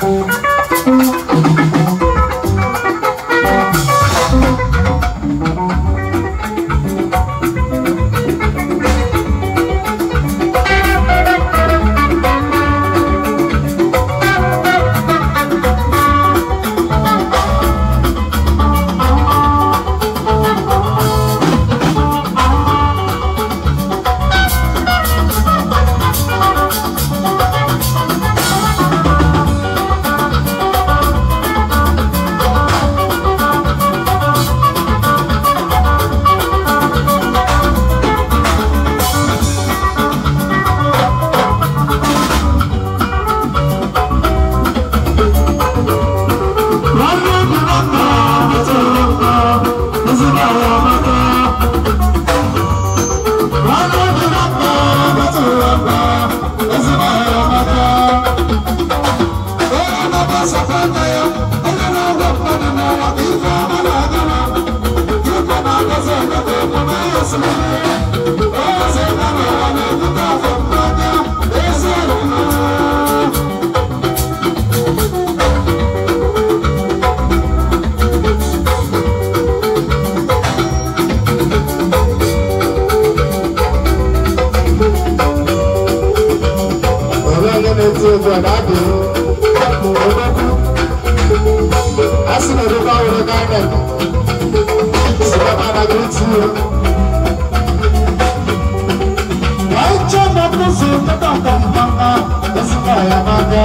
Música asị na edobe ahụrụ ego anyị na-eme sikapa na griti ya wee chee na nkuzi tata ntampama esikwa ya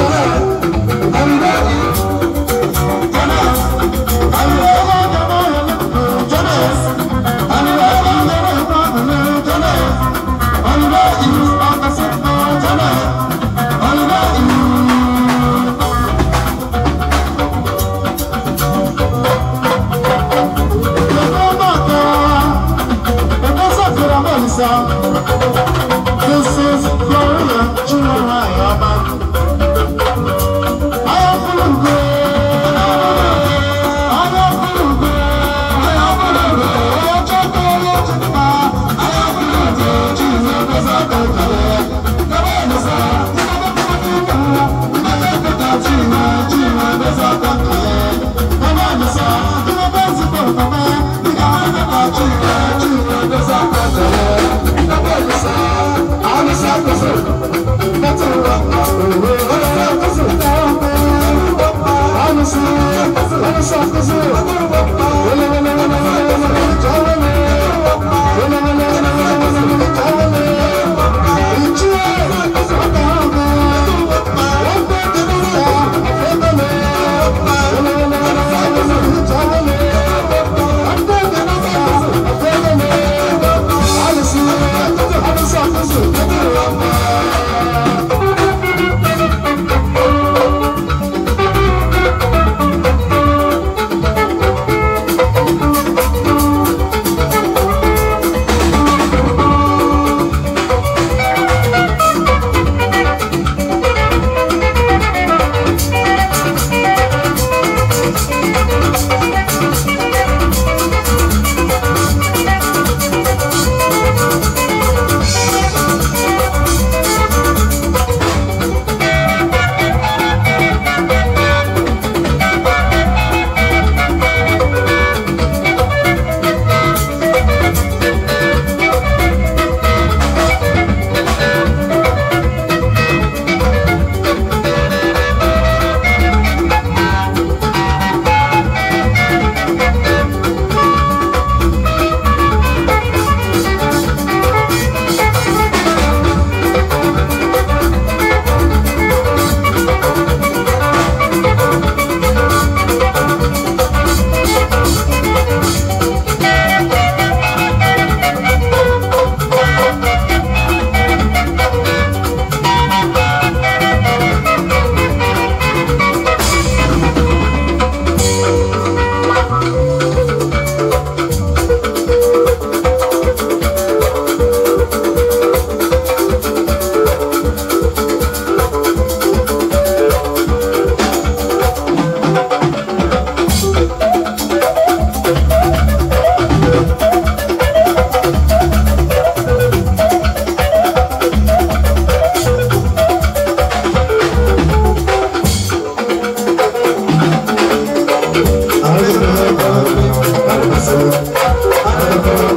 song. sakızı Vele vele Thank